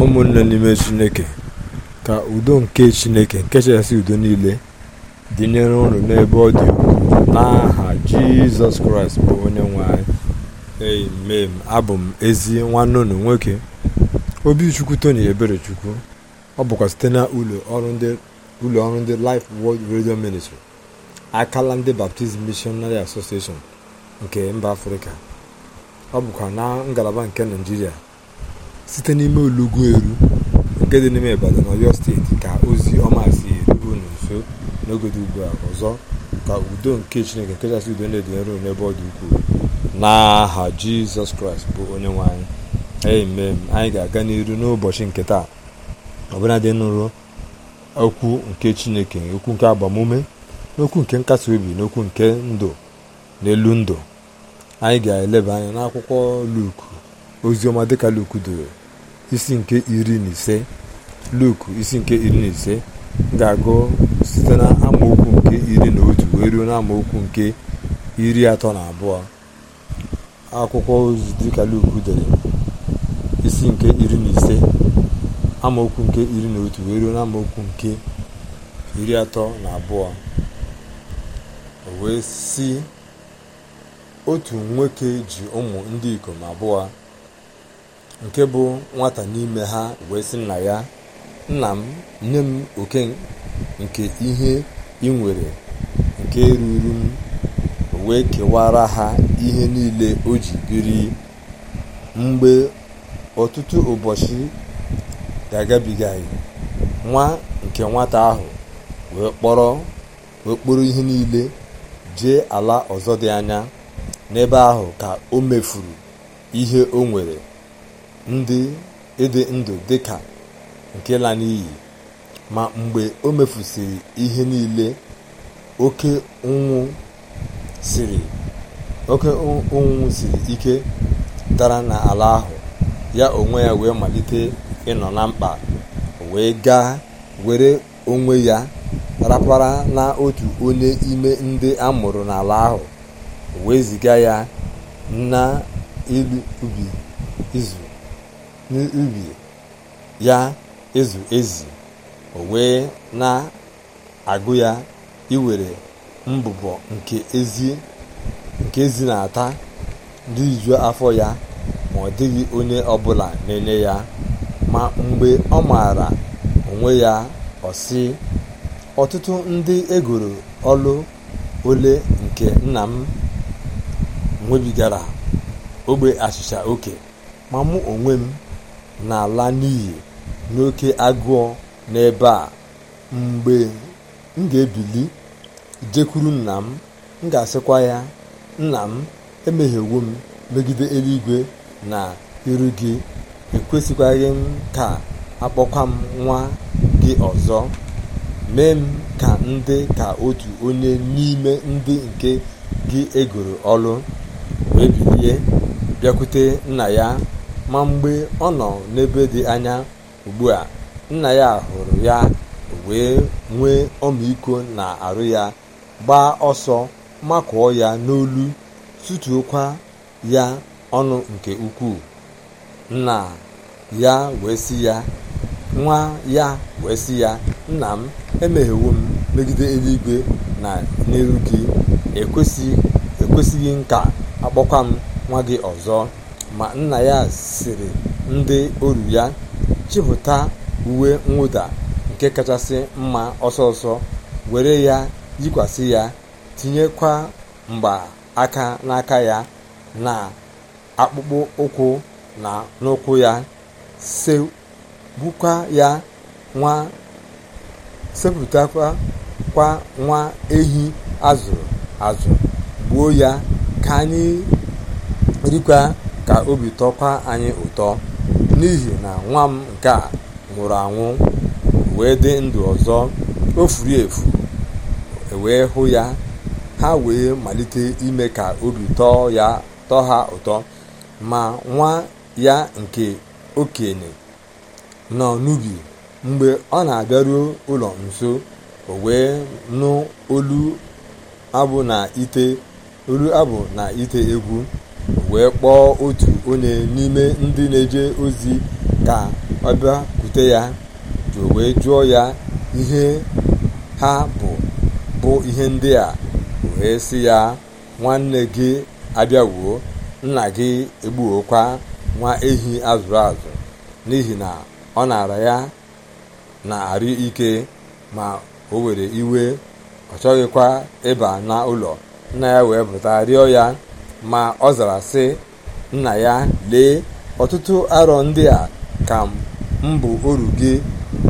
ụmụnne n'ime chineke ka udo nke chineke nke chasị udo niile dịnyere unu n'ebe ọ dị ukwuu n'aha jizọs kraịst bụ onye nwe anyị amen abụ m ezi nwanne unu nwoke obichukwu tony eberechukwu ọ bụkwa site na ụlọ ọrụ ndị life world radio ministry akala ndị baptizim missionary association nke mba afrịka ọ bụkwa na ngalaba nke naijiria site n'ime olugbu eru nke dị n'ime ibadan ọyọ steeti ka ozi ọma si erube unu nso n'oge dị ugbu a ọzọ ka udo nke chineke nke kachasị udo na-edonyere n'ebe ọ dị ukwuu n'aha jizọs kraịst bụ onye nwe anyị amen anyị ga-aga n'iru n'ụbọchị nke taa ọbụla dị nụrụ okwu nke chineke okwu nke agbamume n'okwu nke nkasi obi n'okwu nke ndụ n'elu ndụ anyị ga-eleba anya n'akwụkwọ luku oziọma dịka luku doro isi nke iri na ise luk isi nke iri na ise ga-agụ site na amaokwu nke iri na otu wee ruo na amaokwu nke iri atọ na abụọ akwụkwọ ozi dịka luk dere isi nke iri na ise amaokwu nke iri na otu wee ruo na amaokwu nke iri atọ na abụọ o wee si otu nwoke ji ụmụ ndị ikom abụọ nke bụ nwata n'ime ha wee sị nna ya nna m nye m oke nke ihe ị nwere nke ruru m wee kewara ha ihe niile o ji biri mgbe ọtụtụ ụbọchị ga nwa nke nwata ahụ wee kpọrọ okporo ihe niile jee ala ọzọ dị anya n'ebe ahụ ka o mefuru ihe o nwere ndị ịdị ndụ dị ka nke la n'iyi ma mgbe o mefusiri ihe niile oke ụnwụ siri ike dara n'ala ahụ ya onwe ya wee malite ịnọ na mkpa wee gaa were onwe ya rapara na otu onye ime ndị a mụrụ n'ala ahụ wee ziga ya na ilu ubi izu n'ubi ya ezu ezi o wee na-agụ ya iwere mbụbọ nke ezi nke ezi na-ata ndị afọ ya ma ọ dịghị onye ọbụla na-enye ya ma mgbe ọ maara onwe ya ọ ọtụtụ ndị egoro ọlụ ole nke nna m nwebigara ogbe achịcha oke ma mụ onwe m n'ala n'iyi n'oke agụọ n'ebe a mgbe m ga-ebili jekwuru nna m m ga-asịkwa ya nna m emehiewo m megide eluigwe na iru gị ekwesịkwaghị m ka akpọkwa m nwa gị ọzọ mee m ka ndị ka otu onye n'ime ndị nke gị egoro ọlụ wee bilie bịakwute nna ya ma mgbe ọ nọ n'ebe dị anya ugbu a nna ya hụrụ ya wee nwee ọmịiko na-arụ ya gbaa ọsọ makụọ ya n'olu tụtuokwa ya ọnụ nke ukwuu nna ya wee sị ya nwa ya wee sị ya nna m emeghewo m megide eluigwe na n'iru gị ekwesịghị nka akpọkwa m nwa gị ọzọ ma nna ya siri ndị oru ya chịpụta uwe mwụda nke kachasị mma ọsọọsọ were ya yikwasị ya tinyekwa mgba aka n'aka ya na akpụkpọ ụkwụ na n'ụkwụ ya segbukwa sepụtakwa kwa nwa ehi azụrụ azụ gbuo ya ka anyị rikwa ka obi tọkwa anyị ụtọ n'ihi na nwa m nke a nwụrụ anwụ wee dị ndụ ọzọ ofuru efu e wee hụ ya ha wee malite ime ka obi tọọ ha ụtọ ma nwa ya nke okenye nọ n'ubi mgbe ọ na-abịaruo ụlọ nso o wee nụ olu abụ na olu abụ na ite egwu wee kpọọ otu onye n'ime ndị na-eje ozi ka ọ kute ya wee jụọ ya ihe ha bụ bụ ihe ndị a wee sị ya nwanne gị abịawuo nna gị egbuokwa nwa ehi azụrụ azụ n'ihi na ọ na-ara ya na-arị ike ma o were iwe ọ chọghịkwa ịba n'ụlọ nna ya wee pụta rịọ ya ma ọ zara sị nna ya lee ọtụtụ arọ ndị a ka mbụ bụ oru gị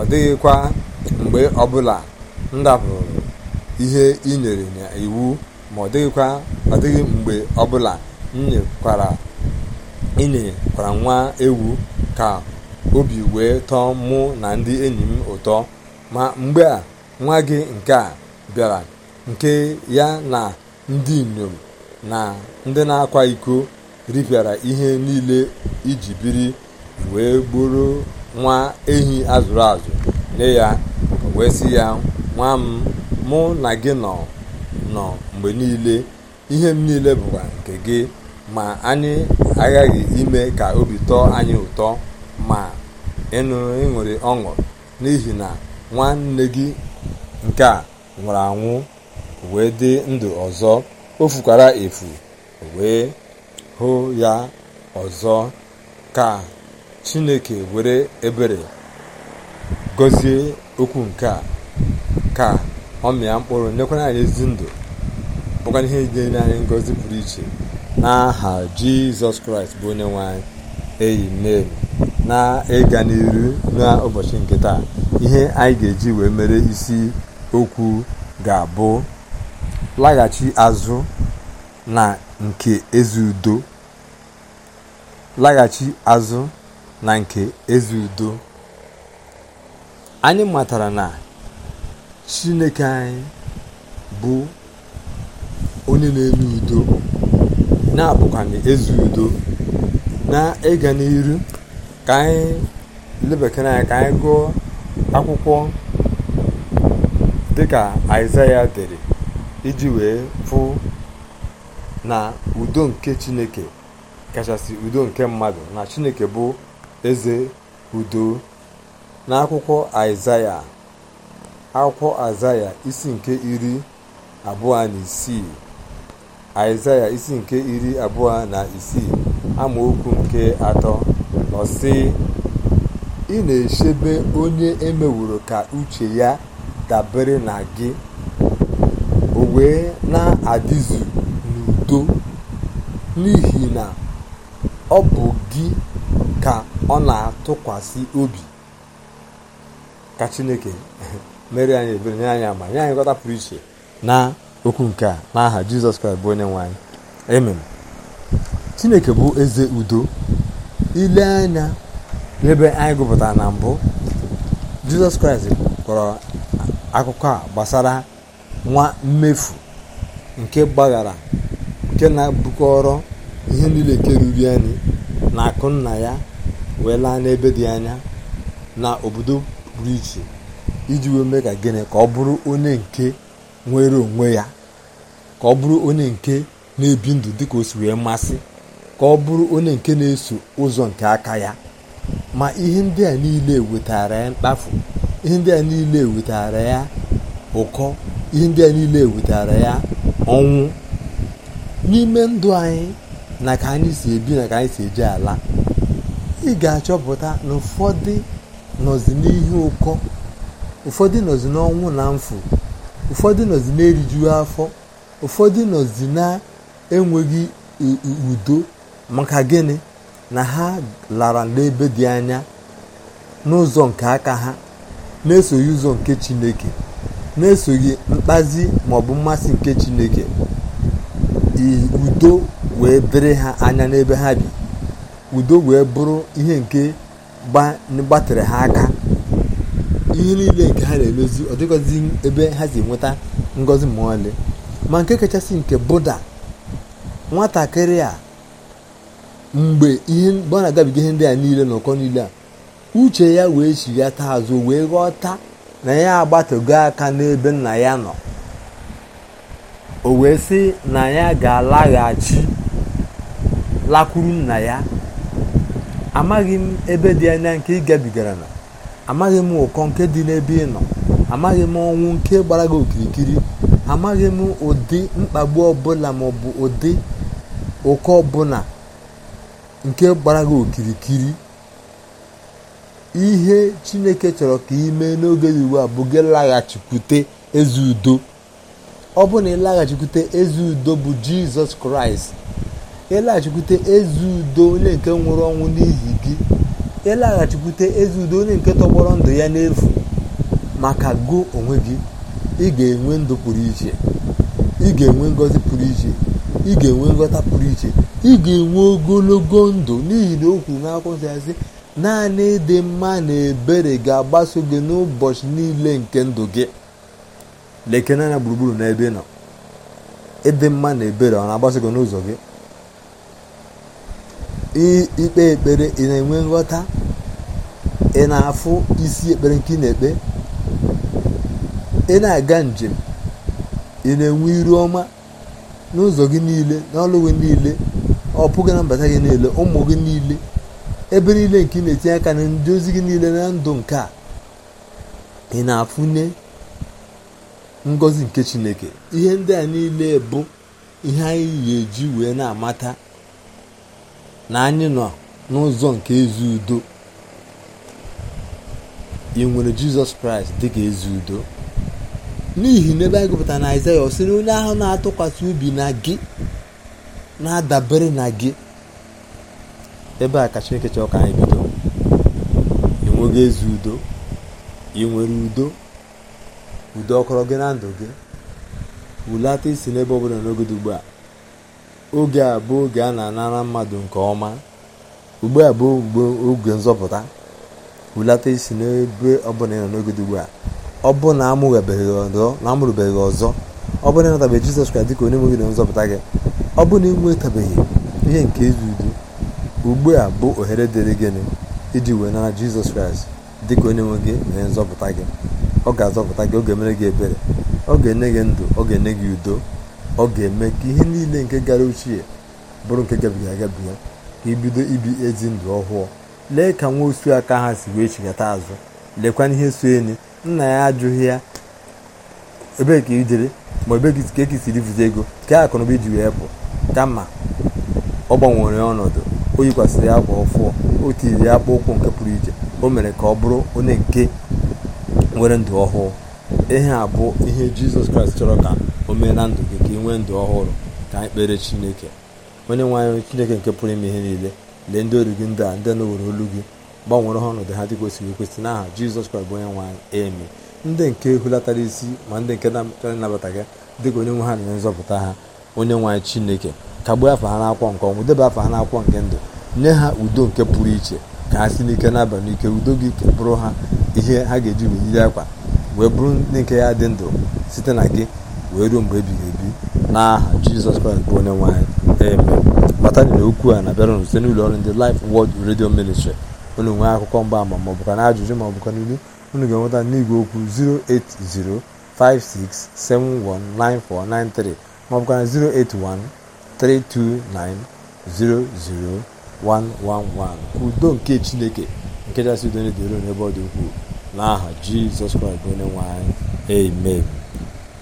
ọ dịghịkwa mgbe ọbụla m dabụrụ ihe ị nyere iwu ma ọ dịghịkwa ọ mgbe ọbụla m nyekwara inyekwara nwa ewu ka obi wee tọọ mụ na ndị enyi m ụtọ ma mgbe a nwa gị nke a bịara nke ya na ndị inyom na ndị na-akwa iko ripịara ihe niile iji biri wee gburu nwa ehi azụrụ azụ nye ya wee sị ya nwa m mụ na gị nọ nọ mgbe niile ihe m niile bụkwa nke gị ma anyị aghaghị ime ka obi tọọ anyị ụtọ ma ịnụrụ ịṅụrị ọṅụ n'ihi na nwanne gị nke a nwụrụ anwụ wee dị ndụ ọzọ o fukwara efu wee hụ ya ọzọ ka chineke were ebere gozie okwu nke a ka ọ mịa mkpụrụ nyekwara anyị ezi ndụ bụkwa ihe nyere anyị ngọzi pụrụ iche n'aha jizọs kraịst bụ onye nwanyị eyi mmeri na ịga n'iru n'ụbọchị nke taa ihe anyị ga-eji wee mere isi okwu ga-abụ laghachi azụ na nke ezi udo anyị matara na chineke anyị bụ onye na-enye udo na-abụkwanye ezi udo na ịga n'iru ka anyị lebekere anya ka anyị gụọ akwụkwọ dịka aịzaya dere iji wee fụ na udo nke chineke kachasị udo nke mmadụ na chineke bụ eze udo n'akwụkwọ aịzaya akwụkwọ aịzaya isi nke iri abụọ na isii aịzaya isi nke iri abụọ na isii amaokwu nke atọ ọsị ị na-echebe onye emewuru ka uche ya dabere na gị o wee na adịzi n'udo n'ihi na ọ bụ gị ka ọ na-atụkwasị obi ka chineke mere anyị ebere nye anyị ama nye anyị gọta pụrụ iche na okwu nke a n'aha jizọs kraịst bụ onye nwanyị ememme chineke bụ eze udo ile anya n'ebe anyị gụpụtara na mbụ jizọs kraịst kọrọ akụkọ a gbasara nwa mmefu nke gbaghara nke na-abụkọrọ ihe niile nke ruru anyị na akụ nna ya wee laa n'ebe dị anya na obodo pụrụ iche iji wee mee ka gịnị ka ọ bụrụ onye nke nwere onwe ya ka ọ bụrụ onye nke na-ebi ndụ dịka o si wee masị ka ọ bụrụ onye nke na-eso ụzọ nke aka ya ma ihe ndị a niile wetara ya mkpafu ihe ndị a niile wetara ya ụkọ ihe ndị a niile wetara ya ọnwụ n'ime ndụ anyị na ka anyị si ebi na ka anyị si eji ala ị ga-achọpụta na ụfọdụ nọzi n'ihu ụkọ ụfọdụ nọzi n'ọnwụ na mfu ụfọdụ nọzi na-erijughị afọ ụfọdụ nọzi na-enweghị udo maka gịnị na ha lara n'ebe dị anya n'ụzọ nke aka ha na-esoghị ụzọ nke Chineke na-esoghị mkpazi maọbụ mmasị nke chineke udo wee dịrị ha anya n'ebe ha bi udo wee bụrụ ihe nke gbatịrị ha aka ihe niile nke ha na-emezi ọ dịghọzi ebe ha si nweta ngọzi ma ọlị ma nke kachasị nke buda nwatakịrị a mgbe ihe ọ na-agabiga ihe ndị a niile n'ụkọ niile a uche ya wee taa azụ wee ghọta na ya agbatago aka n'ebe nna ya nọ o wee sị na ya ga-alaghachi lakwuru nna ya amaghị m ebe dị anya nke ị gabigara na amaghị m ụkọ nke dị n'ebe ị nọ amaghị m ọnwụ nke gbara okirikiri amaghị m ụdị mkpagbu ọbụla maọbụ ụdị ụkọ ọbụla nke gbara gị okirikiri ihe chineke chọrọ ka ị mee n'oge dị ugbu a bụ gị laghachikwute ezi udo ọ bụ na ịlaghachikwute ezi udo bụ jizọs kraịst ịlaghachikwute ezi udo onye nke nwụrụ ọnwụ n'ihi gị ịlaghachikwute ezi udo onye nke tọgbọrọ ndụ ya n'efu maka gụ onwe gị ị ga-enwe ndụ pụrụ iche ị ga-enwe ngọzi pụrụ iche ị ga-enwe nghọta pụrụ iche ị ga-enwe ogologo ndụ n'ihi na o kwuru n'akwụkwọ nsọ ya naanị ịdị mma na ebere ga-agbaso gị n'ụbọchị niile nke ndụ gị lekene anya gburugburu n'ebe ị nọ ịdị mma na ebere ọ na-agbaso gị n'ụzọ gị ikpe ekpere ị na-enwe nghọta ị na-afụ isi ekpere nke ị na-ekpe ị na-aga njem ị na-enwe iru ọma n'ụzọ gị niile n'ọlụ gị niile ọ pụghị na mbata gị niile ụmụ gị niile ebe niile nke ị na-etinye aka na ndị ozi gị niile na ndụ nke a ị na-afụnye ngọzi nke chineke ihe ndị a niile bụ ihe anyị ga-eji wee na-amata na anyị nọ n'ụzọ nke ezi udo ị nwere jizọs kraịst dị ka ezi udo n'ihi na ebe anyị gụpụtara na aịzaya ọ sị onye ahụ na-atụkwasị ubi na gị na-adabere na gị ebe a ka chineke chọrọ ka anyị bido enweghị ezi udo ị nwere udo udo ọkọrọ gị na ndụ gị wulata isi n'ebe ọ bụla n'oge ugbu a oge a bụ oge a na-anara mmadụ nke ọma ugbu a bụ oge nzọpụta wulata isi n'ebe ọbụla ị nọ n'oge ugbu a ọ bụ na amụrụbeghị ọzọ ọ bụ na ịnatabeghị jizọs kraịst dịka onye nweghị na nzọpụta gị ọ bụ na ị nwetabeghị ihe nke ezi udo ugbu a bụ ohere dịrị gịnị iji wee nara jizọs kraịst dị ka onye nwe gị na onye nzọpụta gị ọ ga-azọpụta gị ọ ga-emere gị ebere ọ ga-enye gị ndụ ọ ga-enye gị udo ọ ga-eme ka ihe niile nke gara ochie bụrụ nke gabiga agabiga ka ibido ibi ezi ndụ ọhụụ lee ka nwa osu aka ha si wee chigata azụ lekwana ihe so enyi nna ya ajụghị ya ebee ka ijere ma ebe ka eki siri vụta ego ka akụnụba iji wee pụ kama ọ gbanwere ọnọdụ o yikwasịrị akwa ọfụọ o tiri ya akpa ụkwụ nke pụrụ iche o mere ka ọ bụrụ onye nke nwere ndụ ọhụụ ihe a bụ ihe jizọs kraịst chọrọ ka o mee na ndụ gị ka ị nwee ndụ ọhụrụ ka anyị kpere chineke onye nwe anyị chineke nke pụrụ ime ihe niile lee ndị oru gị ndị a ndị na-ewere olu gị gbanwere ha ọnọdụ ha dị kwesịrị ekwesị n'aha jizọs kraịst bụ onye nwe anyị ndị nke hulatara isi ma ndị nke na ịnabata gị dịka onye nwe ha na-enye nzọpụta ha onye nwe chineke kagbuo afọ ha n'akwọ nke ọnwụ debe afọ ha n'akwọ nke ndụ nye ha udo nke pụrụ iche ka ha si n'ike n'abalị n'ike udo gị bụrụ ha ihe ha ga-eji weyiri akwa wee bụrụ ndị nke ya dị ndụ site na gị wee ruo mgbe ebighị ebi n'aha jizọs kraịst bụ onye nwe anyị eme kpatara na okwu a na-abịara site n'ụlọ ọrụ ndị Life wọd Radio Ministry unu nwee akụkọ mgbaama ama maọbụ ka na ajụjụ maọbụ ka n'ilu unu ga-enweta n'igwe okwu 08056719493 maọbụ ọ 081 329 00111 udo nke chineke nke kachasị udo niile dịrị n'ebe ọ dị ukwuu n'aha jizọs kraịst bụ onye nwanyị amen